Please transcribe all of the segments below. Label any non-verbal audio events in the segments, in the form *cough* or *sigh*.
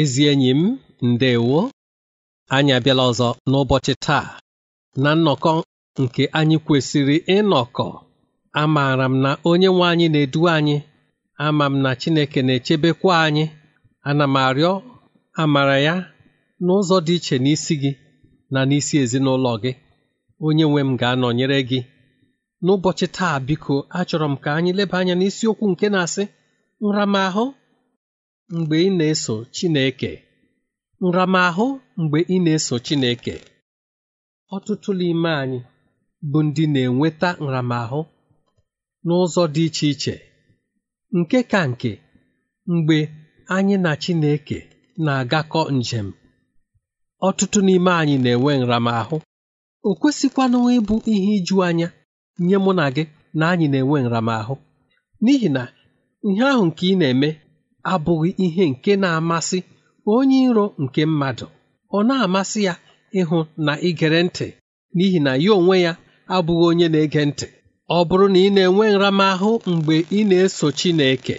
ezi enyi m ndewo anyị abịala ọzọ n'ụbọchị taa na nnọkọ nke anyị kwesịrị ịnọkọ amaara m na onye nwe anyị na-edu anyị ama m na Chineke na-echebekwa anyị ana m arịọ amara ya n'ụzọ dị iche n'isi gị na n'isi ezinụlọ gị onye nwe m ga-anọnyere gị n'ụbọchị taa biko achọrọ m ka anyị leba anya n'isiokwu nke na-asị nramahụ mgbe ị na-eso Chineke nramahụ mgbe ị na-eso Chineke ọtụtụ n'ime anyị bụ ndị na-enweta nramahụ n'ụzọ dị iche iche nke ka nke mgbe anyị na Chineke na-agakọ njem ọtụtụ n'ime anyị na-enwe nramahụ o kwesịkwanụ ịbụ ihe iju anya nye mụ na gị na anyị na-enwe nramahụ n'ihi na ihe ahụ nke ị na-eme abụghị ihe nke na-amasị onye iro nke mmadụ ọ na-amasị ya ịhụ na igere ntị n'ihi na ya onwe ya abụghị onye na-ege ntị ọ bụrụ na ị na-enwe nramahụ mgbe ị na-eso Chineke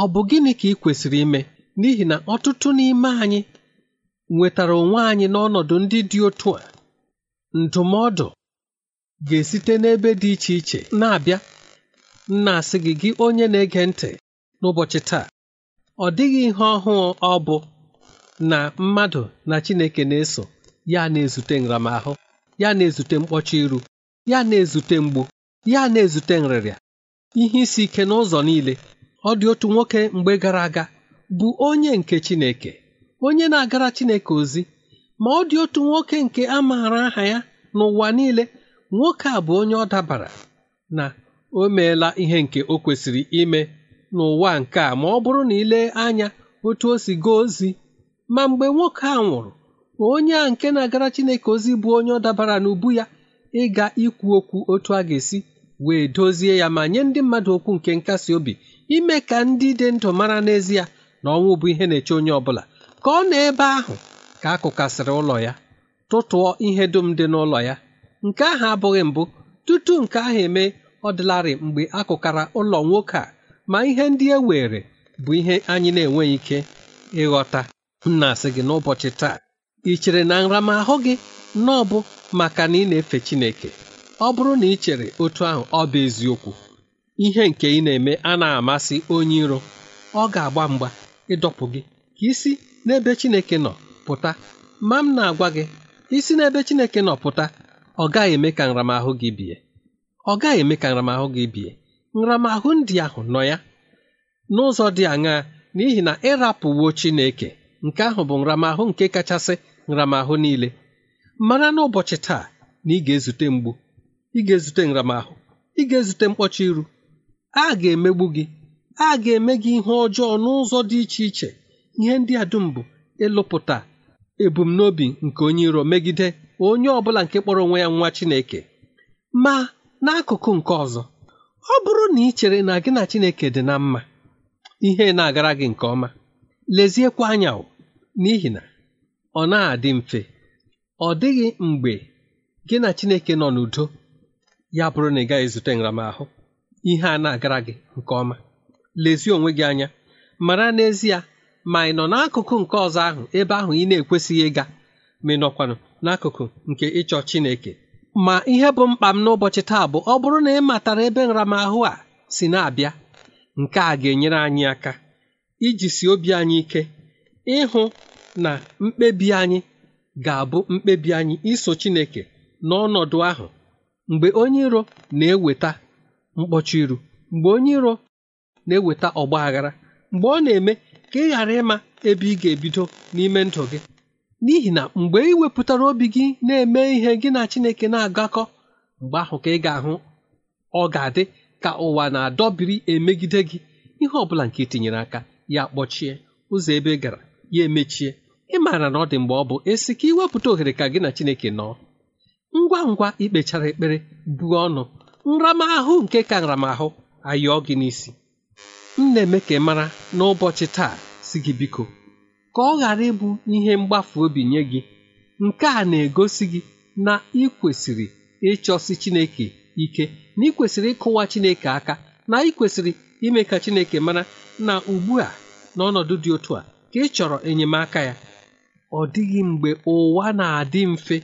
ọ bụ gịnị ka ị kwesịrị ime n'ihi na ọtụtụ n'ime anyị nwetara onwe anyị n'ọnọdụ ndị dị otu a ndụmọdụ ga-esite n'ebe dị iche iche na-abịa nna asị gị gị onye na-ege ntị n'ụbọchị taa Ọ dịghị ihe ọhụụ ọ bụ na mmadụ na Chineke na-eso ya na-ezute nramahụ ya na-ezute mkpọcha iru ya na-ezute mgbu ya na-ezute nrịrịa ihe isi ike n'ụzọ niile ọ dị otu nwoke mgbe gara aga bụ onye nke Chineke onye na-agara Chineke ozi ma ọ dị otu nwoke nke a maara aha ya n'ụwa niile nwoke a bụ onye ọ dabara na o meela ihe nke o kwesịrị ime n'ụwa nke a ma ọ bụrụ na ile anya otu o si gaa ozi ma mgbe nwoke a nwụrụ onye a nke na-agara Chineke ozi bụ onye ọ dabara n'ubu ya ịga ikwu okwu otu a ga-esi wee dozie ya ma nye ndị mmadụ okwu nke nkasi obi ime ka ndị dị ndụ mara n'ezie na ọnwụ bụ ihe na-eche onye ọbụla ka ọ na ebe ahụ ka a kụkasịrị ụlọ ya tụtụọ ihe dum dị n'ụlọ ya nke ahụ abụghị mbụ tutu nke ahụ eme ọ dịlarị mgbe akụkara ụlọ nwoke a ma ihe ndị e were bụ ihe anyị na-enweghị ike ịghọta m na-asị gị n'ụbọchị taa ị chere na nramahụ gị na ọ bụ maka na ị na-efe Chineke ọ bụrụ na ị chere otu ahụ ọ bụ eziokwu ihe nke ị na-eme a na-amasị onye iro ọ ga-agba mgba ịdọpụ gị ka isi n'ebe Chineke nọ pụta ma m na-agwa gị isi n'ebe Chineke nọ pụta ọ gaghị eme ka nramahụ gị bie ọ gaghị eme ka nramahụ gị bie nramahụ ndị ahụ nọ ya n'ụzọ dị aṅaa n'ihi na ịrapụwo Chineke nke ahụ bụ nramahụ nke kachasị nramahụ niile mara n'ụbọchị taa na ị ga-ezute mgbu ị ga-ezute nramahụ ị ga-ezute mkpọcha iru a ga-emegbu gị a ga-eme gị ihe ọjọọ n'ụzọ dị iche iche ihe ndị a dum bụ ịlụpụta ebumnobi nke onye iro megide onye ọ bụla nke kpọrọ onwe ya nwa Chineke ma n'akụkụ nke ọzọ ọ bụrụ na ị chere na gị na Chineke dị na mma ihe na-agara gị nke ọma leziekwa anya n'ihi na ọ na-adị mfe ọ dịghị mgbe gị na Chineke nọ n'udo ya bụrụ na ị gaghị zute nramahụ ihe a na-agara gị nke ọma lezie onwe gị anya mara n'ezie ma ị nọ n'akụkụ nke ọzọ ahụ ebe ahụ ị na-ekwesịghị ịga ma ị nọkwanụ n'akụkụ nke ịchọ Chineke ma ihe bụ mkpa m n'ụbọchị taa bụ ọ bụrụ na ị matara ebe nramahụ a si na-abịa nke a ga-enyere anyị aka iji si obi anyị ike ịhụ na mkpebi anyị ga-abụ mkpebi anyị iso Chineke n'ọnọdụ ahụ mgbe onye iro na-eweta mkpọchi iru mgbe onye iro na-eweta ọgba aghara mgbe ọ na-eme ka ị ghara ịma ebe ị ga-ebido n'ime ndụ gị n'ihi na mgbe ị wepụtara obi gị na-eme ihe gị na Chineke na-agakọ mgbe ahụ ka ị ga-ahụ ọ ga-adị ka ụwa na-adọbiri emegide gị ihe ọ bụla nke etinyere aka ya kpọchie ụzọ ebe gara ya emechie ị maara na ọ dị mgbe ọ bụ esi ka iwepụta ohere ka gị na Chineke nọọ ngwa ngwa ikpechara ekpere buo ọnụ nramahụ nke ka nramahụ ayọọ gị n'isi m na-eme ka ị mara n'ụbọchị taa si gị biko ka ọ ghara ịbụ ihe mgbafu obi nye gị nke a na-egosi gị na ị kwesịrị ịchọsi chineke ike na ị kwesịrị ịkụwa chineke aka na ị kwesịrị ime ka chineke mara na ugbu a n'ọnọdụ dị otu a ka ị chọrọ enyemaka ya ọ dịghị mgbe ụwa na-adị mfe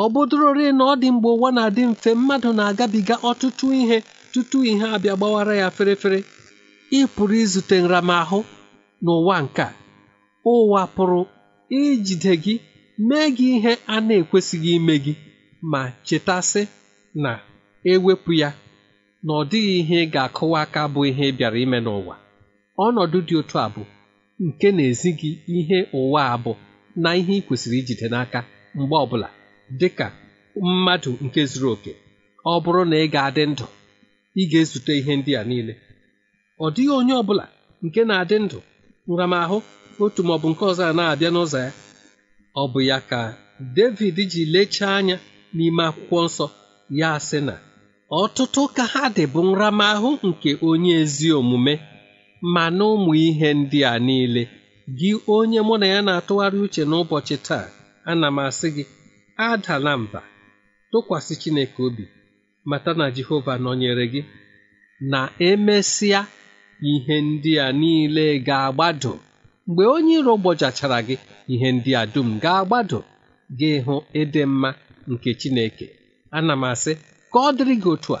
ọ bụdụrorị na ọ dị mgbe ụwa na-adị mfe mmadụ na-agabiga ọtụtụ ihe tutu ihe abịa gbawara ya ferefere ị pụrụ izute nramahụ n'ụwa nke a ụwa pụrụ ijide gị mee gị ihe a na-ekwesịghị ime gị ma chetasị na ewepụ ya na ọ dịghị ihe ị ga-akụwa aka bụ ihe ị bịara ime n'ụwa ọnọdụ dị otu a bụ nke na-ezi gị ihe ụwa a bụ na ihe ị kwesịrị ijide n'aka mgbe ọbụla dị ka mmadụ nke zuru oke ọ bụrụ na ị ga-adị ndụ ị ga-ezute ihe ndị a niile ọ dịghị onye ọbụla nke na-adị ndụ nramahụ otu maọbụ nke ọzọ a na-abịa n'ụzọ ya ọ bụ ya ka David ji lechaa anya n'ime akwụkwọ nsọ ya sị na ọtụtụ ka ha dị bụ nramahụ nke onye ezi omume ma na ụmụ ihe ndị a niile gị onye mụ na ya na-atụgharị uche n'ụbọchị taa ana m asị gị adala mba tụkwasị Chineke obi mata na Jehova nọnyere gị na emesịa ihe ndị a niile ga-agbado mgbe onye iro gbọchachara gị ihe ndị a dum ga-agbado gị hụ ịdị mma nke Chineke ana m asị ka ọ dịrị gị otu a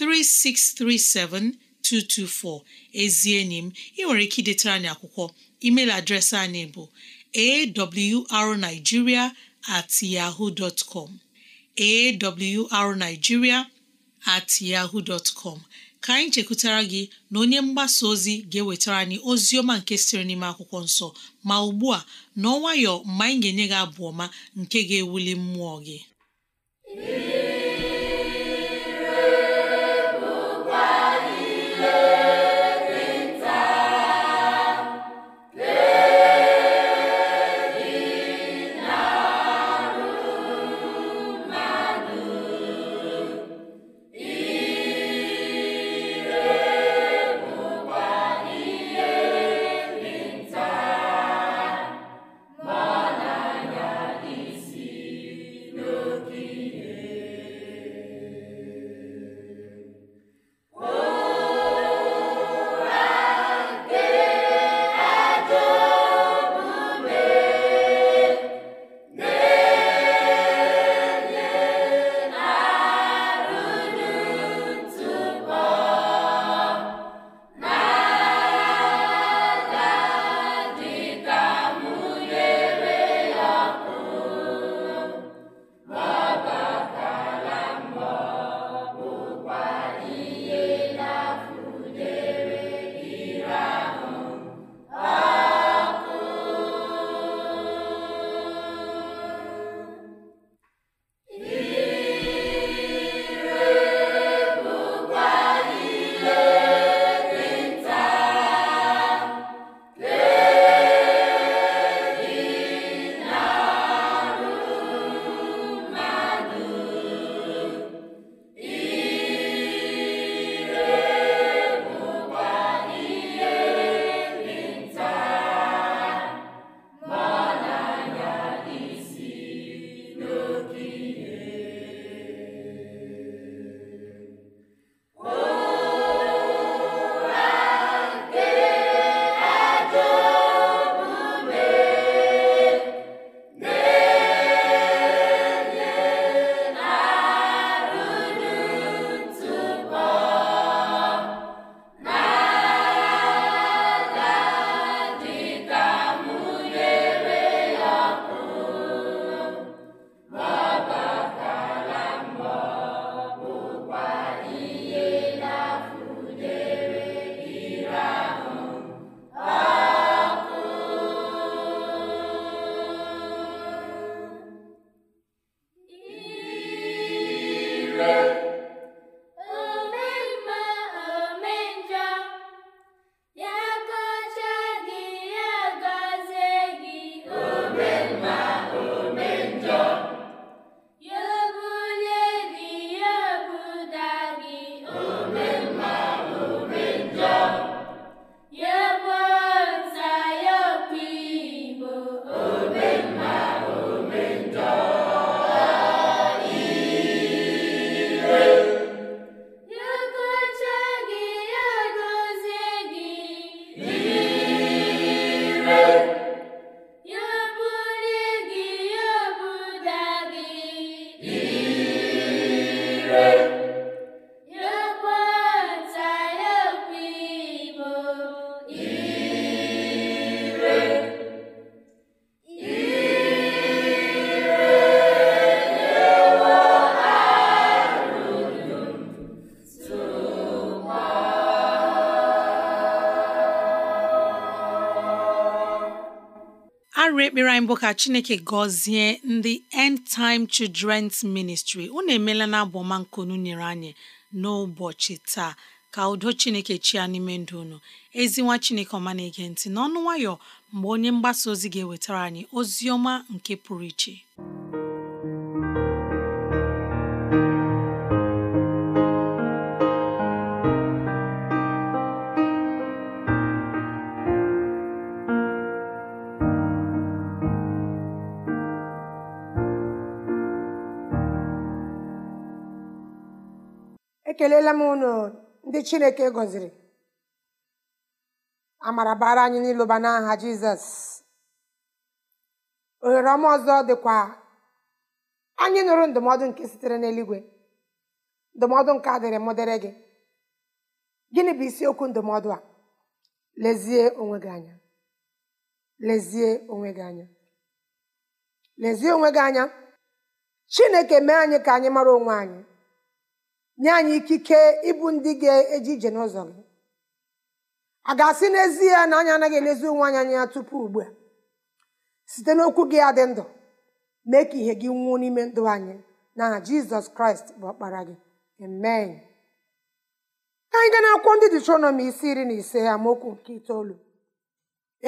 3637224 ezi enyi m ị nwere ike idetara anyị akwụkwọ email adreesị anyị bụ awrnigeria at at yahoo dot ka anyị chekwutara gị na onye mgbasa ozi ga-ewetara anyị ozi ọma nke sịrị n'ime akwụkwọ nsọ ma ugbu a n'ọnwayọ mgbe anyị ga-enye gị abụ ọma nke ga-ewuli mmụọ gị anyị bụ ka chineke gọzie ndị end time children's ministry unu emeela na abọmankunu nyere anyị n'ụbọchị taa ka udo chineke chia n'ime ndụ unu ezinwa chineke ọma na-ege ntị n'ọnụ nwayọ mgbe onye mgbasa ozi ga-ewetara anyị ozi ọma nke pụrụ iche ekelela m unu ndị chineke gọziri amara bara anyị n'ịlụba n'aha jizọs ohere ọma ọzọ dịkwa anyị nụrụ ndụmọdụ nke sitere n'eluigwe ndụmọdụ nke adịrị mụ gị gịnị bụ isiokwu ndụmọdụ a lezie onwe lezie onwe gị anya lezie onwe gị anya chineke mee anyị ka anyị mara onwe anyị nye anyị ikike ịbụ ndị ga-eji ije n'ụzọ gị a ga-asị n'ezie na anyị anaghị elezi onwe anyị anya tupu ugbu a site n'okwu gị adị ndụ mee ka ihe gị nwuo n'ime ndụ anyị na jizọs kraịst bụ ọkpara gị amen ka anyị gaa n'akwụkwọ ndị detronọmi isi iri na ise amaokwu nke itoolu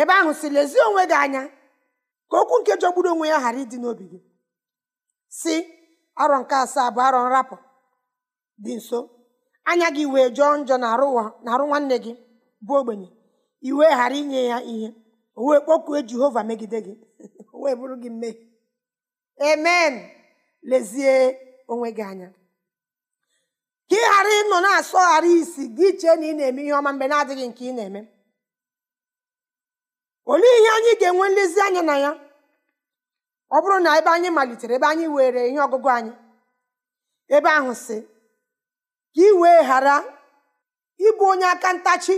ebe ahụ si lezie onwe gị anya ka okwu nke jọgburu onwe ya ghara ịdị n'obi gị si arọ nke asaa bụ arọ nrapụ dị nso anya gị wee jọọ njọ na-arụ nwanne gị bụ ogbenye iwe ghara inye ya ihe o wee kpọkuo jehova megide gị *laughs* o wee bụrụ gị mmehie amen lezie onwe gị anya ka ị ghara ịnọ na-asọgharị isi gị chee na ị na-eme ihe ọma mgbe na-adịghị nke ị na-eme olee ihe anyị ga-enwe nlezianya na ya ọ bụrụ na ebe anyị malitere ebe anyị were ihe ọgụgụ anyị ebe ahụ si ka ị wee ghara ịbụ onye aka ntachi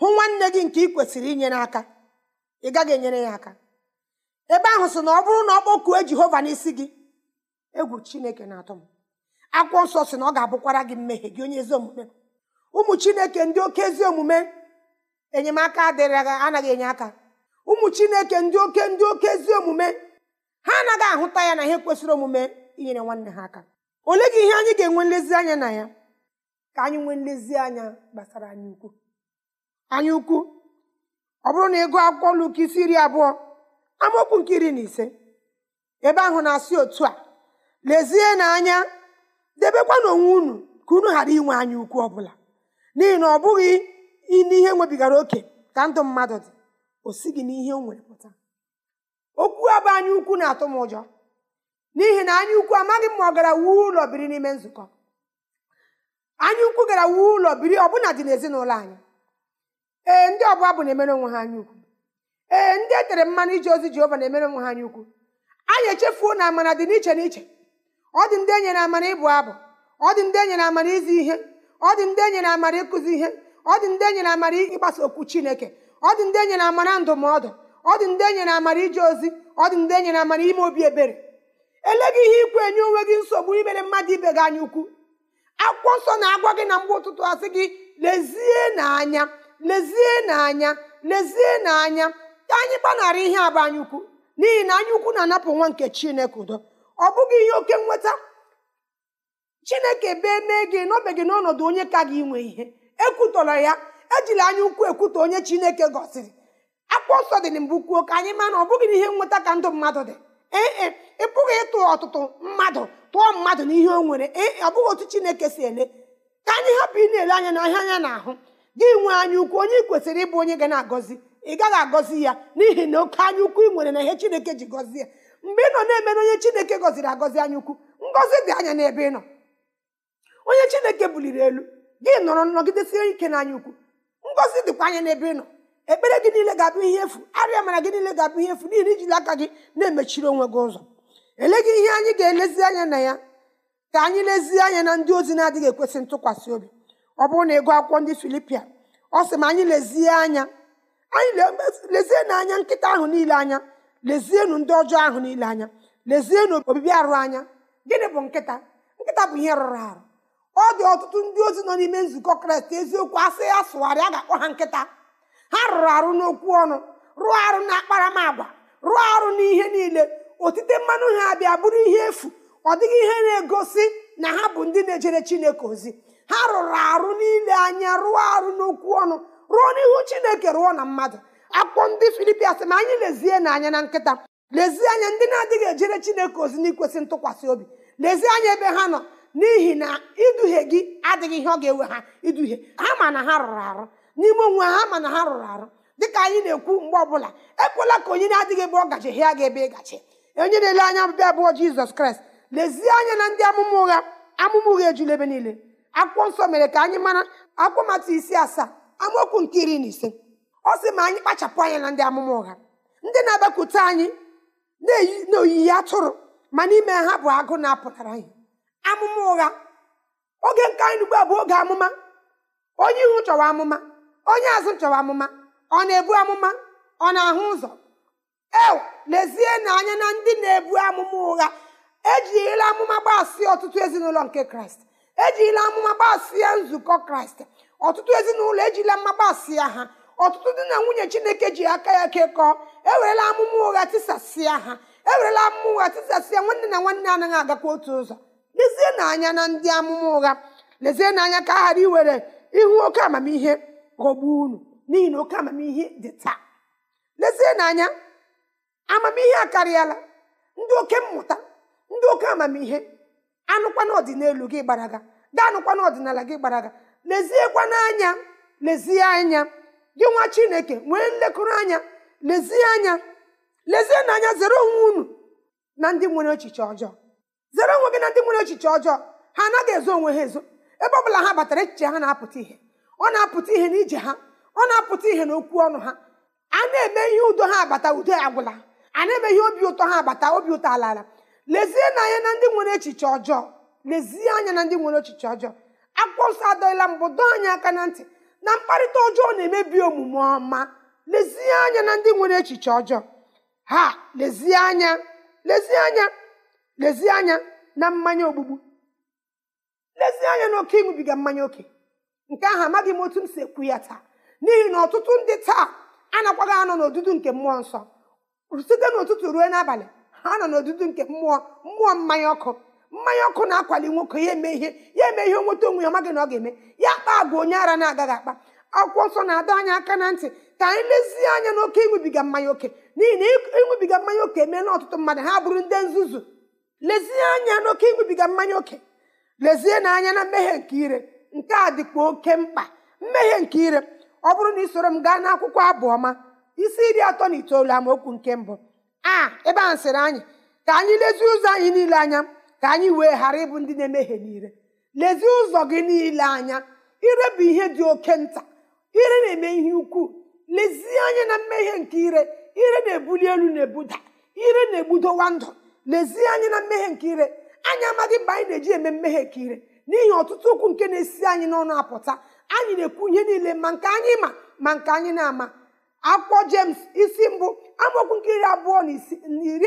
hụ nwanne gị nke ị kwesịrị inye aka ị gaghị enyere ya aka ebe ahụ sị na ọ bụrụ na ọ kpọkuo jehova n'isi gị egwu chineke na-atọ m akwụkwọ nsọ si na ọ ga-abụkwara gị mmehie gị onye ezi omume ụmụ chineke ndị oke ezi omume enyemaka adịrị anaghị enye aka ụmụ chineke ndị oke ndị oke ezi omume ha anaghị ahụta ya na ihe kwesịrị omume inyere nwanne ha aka ole gị ihe anyị ga-enwe nlezianya na ya ka anyị nwee nlezianya gbasara anyị ukwu anyị ukwu ọ bụrụ na ịgụ akwụkwọ Luk isi iri abụọ amaokwu nke iri na ise ebe ahụ na-asị otu a lezie na anya debekwa n'onwe unu ka unu ghara inwe anya ukwu bụla n'ihi na ọ bụghị n'ihe nwebigara oke ka ndụ mmadụ dị o si gị n'ihe o nwere pụta okwu abụ anya ukwu na-atụ m ụjọ n'ihi na anyaukwu amaghị m ma ọ gara wuo ụlọ biri n'ime nzukọ anyaukwu gara wuo ụlọ biri ọbụna dị n'ezinụlọ anyị ee ndị ọbụla bụ na-emere onwe ha anyaukwu ee ndị e tere mmanụ ije ozi Jehova na-emere onwe ha anya anyị echefuo na amara dị n'iche n'iche ọ dị ndị enyere amara ịbụ abụ ọ dị ndị enyere amara izi ihe ọ dị ndị enyere amara ịkụzi ihe ọ dị ndị enyere amara ịgbasa okwu Chineke ọ dị ndị enyere amara ndụmọdụ ọ dị ndị enyere amara ije ozi ọ dị ndị enyere amara ime obi ebere eleghị ihe ikwu enye onwe gị nsogbu imere mmadụ ibe gị anya ukwu akwụkwọ nsọ na-agwa gị na mgbe ụtụtụ asị gị lezie n'anya lezie n'anya lezie n'anya anyị gbanara ihe abụ anya ukwu n'ihi na anya ukwu na-anapụ nwa nke chineke udo ọ bụghị ihe oke nweta chineke bee mee gị n'obe gị n'ọnọdụ onye ka gị nwe ihe ekwutọrọ ya ejila anya ukwu ekwutọ onye chineke gọziri akwụkwọ nsọ dị na mbụ kwuo ka anyị ma na ọ bụghị ihe nweta ka ndụ mmadụ dị ee e, bụghị ịtụ ọtụtụ mmadụ tụọ mmadụ n'ihe o nwere e, ọ bụghị otu chineke si ele ka anyị hapụ ị na-ele anya na ahịa anya na-ahụ gị nwee anya ukwu onye ị kwesịrị ịbụ onye ga na-agọzi ị gaghị agọzi ya n'ihi na oke anya ukwu ị nwere na ihe chineke ji gọzie ya mgbe ị nọ na-emere onye chineke gọziri agọzi anya ukwu ngọzi dị anya n'ebe ị nọ onye chineke buliri elu gị nọrọ nọgidesie ike n'anya ukwu ngọzi dịkwa anya n'ebe ị nọ ekpere gị niile ga-abụ ihe efu arịa mara gị niile ga-abụ ihe efu n'ihi na ijiri aka gị na-emechiri onwe gị ụzọ gị ihe anyị ga-elezi anya na ya ka anyị lezie anya na ndị ozi na-adịghị ekwesị ntụkwasị obi ọ bụrụ na ịgụ akwụkwọ ndị filipia ọ sị ma anyị lezie anya anyị lezie na anya nkịta ahụ niile anya lezienụ ndị ọjọọ ahụ niile anya lezienụ obibi arụ anya gịnị bụ nkịta nkịta bụ ihe rụrụ arụ ọ dị ọtụtụ ndị ozi nọ n'ime nzukọ kraịst eziokwu asị ya sụgharịa ga-akpọ ha nkịta ha rụrụ arụ n'okwu ọnụ rụọ arụ na akparamagwa rụọ arụ n'ihe niile otite mmanụ ha abịa bụrụ ihe efu ọ dịghị ihe na-egosi na ha bụ ndị na-ejere chineke ozi ha rụrụ arụ niile anya rụọ arụ n'okwu ọnụ rụọ n'ihu chineke rụọ na mmadụ akwụkwọ ndị filipia sị ma anyị lezie n'anya na nkịta lezie anya ndị na-adịghị ejere chineke ozi n'ikwesị ntụkwasị obi lezie anya ebe ha nọ n'ihi na iduhie gị adịghị ihe ọ ga-ewe ha iduhie ha ma na ha rụrụ arụ n'ime onwe ha ma na ha rụrụ arụ dịka anyị na-ekwu mgbe ọbụla ekwela ka onye na-adịghị ebe ọ hịa gị ebe ị gachi onye na-ele anya ọbịbịa abụọ jizọs kraịst lezie anya na ndị amụma ụgha amụma ụgha ejula ebe niile akwụkwọ nsọ mere ka anyị mara akwụkwọ mata isi asaa amaokwu nke iri na ise ọ sị ma anyị kpachapụ anya na ndị amụma ụgha ndị na-abịakwute anyị n'oyiyi atụrụ ma n'ime ha bụ agụ na-apụtara anyị amụma ụgha oge nke anyị ugbu a bụ oge amụma onye ihu chọwa amụma onye azụ chọwa amụma ọ na-ebu amụma ọ na-ahụ ụzọ ew na anya na ndị na-ebu amụma ụgha ejila amụma gbasịa ọtụtụ ezinụlọ nke kraịst ejirila amụma gbasịa nzukọ kraịst ọtụtụ ezinụlọ ejila mma gbasịa ha ọtụtụ ndị na nwunye chineke ji aka ya kekọọ ewerela amụma ụgha tisasịa ha ewerela amụma ụgha tisasịa nwanne na nwanne anaghị agakwa otu ụzọ na anya na ndị amụma ụgha na anya ka a ghara iwere ihu oke amamihe ghọgbuo unu n'ihi na oke amamihe dị taa anya amamihe akarịala ndị oke mmụta ndị oke amamihe anụkwa n'ọdịnelu gị gbaraga ga anụkwa ọdịnala gị gbaraga leziekwa anya lezie anya gị nwa chineke nwee nlekọrọ anya lezie anya lezie n'anya zere onwe unu na ndị nwere echiche ọjọọ zere onwe gị na ndị nwere echiche ọjọọ ha anaghị ezo onwe ha ezo ebe ọ bụla ha batara echiche ha na-apụta ihe ọ na-apụta ihe n'ije ha ọ na-apụta ihe n'okwu ọnụ ha a na-eme ihe udo ha abata udo agwụla a emeghị obi ụtọ ha abata obi ụtọ ala ala lezie anya na ndị nwere echiche ọjọọ lezie anya na ndị nwere echiche ọjọọ akwụkwọ nsọ adọghịla mbụ dọọ anyị aka na ntị na mkparịta ọjọọ na-emebi omume ọma lezie anya na ndị nwere echiche ọjọọ ha lezie anya lezie anya lezie anya na mmanya ogbugbu lezie anya na oke ịṅụbiga mmanya oke nke ahụ amaghị m otu m si ekwu ya taa n'ihi na ọtụtụ ndị taa anakwaghị anọ n'odudu nke mmụọ nsọ site n'ụtụtụ ruo n'abalị ha nọ n'odudu nke mmụọ mmụọ mmanya ọkụ mmanya ọkụ na-akwali nwoke ya eme ihe ya eme ihe nweta onwe ya maghị na ọ ga-eme ya kpaa bụ onye ara na-agaghị akpa akwụkwọ nsọ na-adọ anya aka na ntị ka anyị lezie anya n'oke ịṅụbiga mmanya oke n'ihi na ịṅụbiga mmanya oke emeela ọtụtụ mmadụ ha bụrụ ndị nzuzu lezie anya n'oke ịṅụbiga mmanya oke lezie na anya na mmehie nke ire nke a dịkwa oke mkpa mmehie nke ire ọ bụrụ na ị soro m gaa n'akwụkwọ abụ ọma isi iri atọ na itoolu amaokwu nke mbụ a ebe ahụ sịrị anyị ka anyị lezie ụzọ anyị niile anya ka anyị wee ghara ịbụ ndị na-emehie niile lezie ụzọ gị niile anya ire bụ ihe dị oke nta ire na-eme ihe ukwuu lezie anya na mmehie nke ire ire na-ebuli elu na-ebuda ire na-egbudowa ndụ lezie anya na mmehie nke ire anyị amaghị mgbe anyị na-eji eme mmehie nke ire n'ihi ọtụtụ okwu nke na-esi anyị n'ọnụ apụta anyị na-ekwu ihe niile ma nke anyị ma ma nke anyị na-ama akwụkwọ jems isi mbụ amaokwu nke iri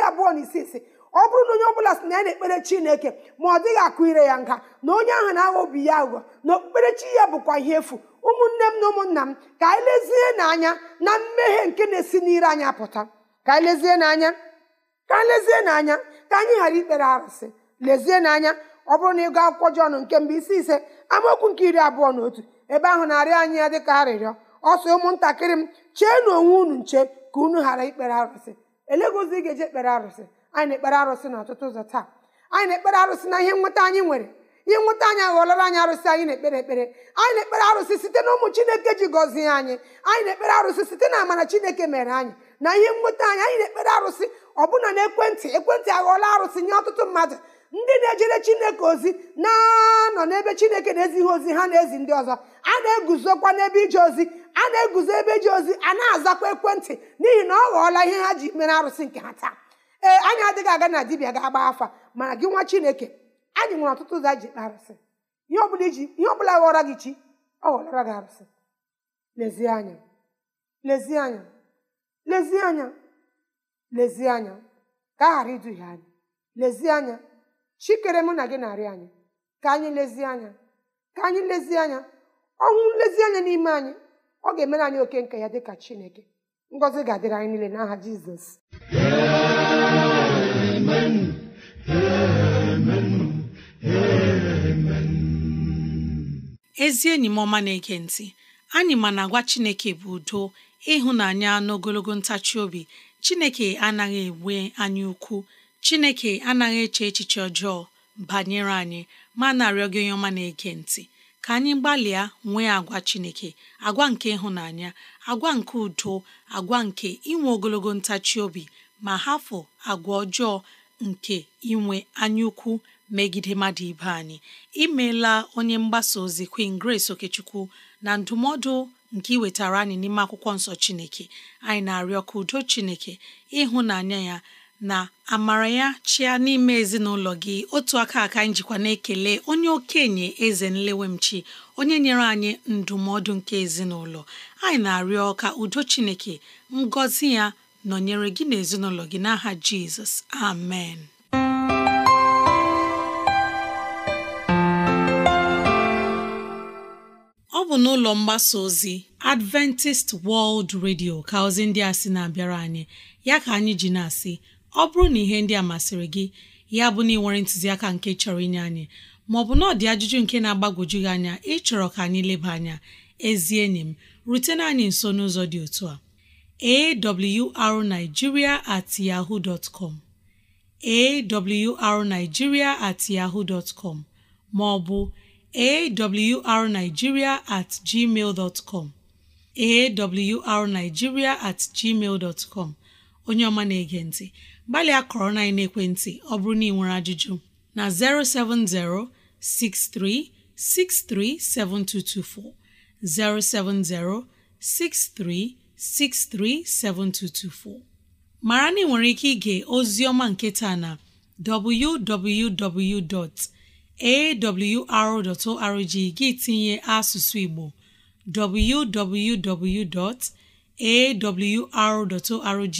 abụọ na isii si ọ bụrụ na onye ọbụla si na ya na-ekpere chineke ma ọ dịghị akụ ire ya nga na onye ahụ na-aghọ obi ya aghụghọ na okpukperechi ya bụkwa ihe efu ụmụnne m na ụmụnna m ka anyị lezie n'anya na mmehie nke na-esi n'ire anya pụta ka anyị lezie n'anya ka anyị lezie n'anya ka anyị ghara ikpere arụsị lezie n'anya ọ bụrụ na ịgụ akwụkwọ jọn nke mbụ isi ise amaokwu nke iri abụọ na otu ebe ahụ na-arịọ anyị ya dịka arịrịọ ọ sị ụmụntakịrị m chee na onwe unu nche ka unu ghara ikpere arụsị elegozi ga-eji ekpere arụsị anyị na-ekpere arụsị n'ọtụtụ ụzọ taa anyị na-ekpere arụsị na ihe nweta anyị nwere ihe nweta anyị aghọlara anyị arụsị anyị na-ekpere ekpere anyị na-ekpere arụsị site na ụmụ chineke ji gọzie anyị anyị na-ekpere arụsị site na amara chineke mere anyị na ihe nweta anyị anyị na-ekpere arụsị ọbụna na ekwentị ekwentị aghọọla arụsị nye ọtụtụ mmadụ ndị na-ejere chineke ozi na-anọ n'ebe chineke na-ezighị ozi ha na-ezi ndị ọzọ a na-eguzokwa n'ebe ije ozi a na-eguzo ebe ji ozi a na-azakwa ekwentị n'ihi na ọ ghọọla ihe ha ji mere arụsị nke ha taa ee anyị adịghị aga na dibịa ga-agba afa mana gị nwa chineke anyị nwere ọtụtụ ụzọ anyị e ji kpee arụsị ihe ọ bụla ghọọra gị chi ọ ghọọra gị arụsị lezie anya lezie anya lezie anya lezie anya ka a ghara iduhie anyị lezie anya chikere mụ na gị na-arị anyị ka anyị lezie anya ka anyị lezie anya ọnwụ nlezianya n'ime anyị ọ ga-emere anyị oke nke ya dị ka chineke ngọzi ga-adịrị anyị niile n'aha jizọs ezi enyi m ọma na-ege ntị anyị ma na agwa chineke bụ udo ịhụnanya n'ogologo ntachi obi chineke anaghị enwe anyị ukwu chineke anaghị eche echiche ọjọọ banyere anyị ma na-arịọ gị onye ọma na-ege ntị ka anyị gbalịa nwee agwa Chineke agwa nke ịhụnanya agwa nke udo agwa nke inwe ogologo ntachi obi ma hafụ agwa ọjọọ nke inwe anyaukwu megide mmadụ ibe anyị imeela onye mgbasa ozi Queen Grace Okechukwu na ndụmọdụ nke iwetara anyị n'ime akwụkwọ nsọ Chineke anyị na-arịọ ka udo Chineke ịhụnanya ya na amara ya chịa n'ime ezinụlọ gị otu aka aka njikwa na-ekele onye okenye eze nlewemchi onye nyere anyị ndụmọdụ nke ezinụlọ anyị na-arịọ ka udo chineke ngọzi ya nọnyere gị na gị n'aha jizọs amen ọ bụ n'ụlọ mgbasa ozi Adventist World Radio ka ozi ndị a sị na-abịara anyị ya ka anyị ji na-asị ọ bụrụ na ihe ndị a masịrị gị ya bụ na ị nwere ntụziaka nke chọrọ inye anyị maọbụ na ọdị ajụjụ nke na-agbagwoju gị anya ịchọrọ ka anyị leba anya ezi enyi m rutena anyị nso n'ụzọ dị otu a arigiria at yahoo dot com at yahoo com maọbụ arigiria at gmail dot at gmail dot onye ọma na-ege ntị gbalịa kọrọ na ekwentị ọ bụrụ na ị nwere ajụjụ na 070 6363 7224 070 6363 7224 mara na ị nwere ike ige ozi ọma nke taa na www.awr.org gị tinye asụsụ Igbo www.awr.org